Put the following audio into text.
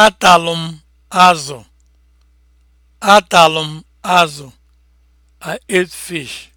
atalụ m azụ atalụ m azụ i ate fish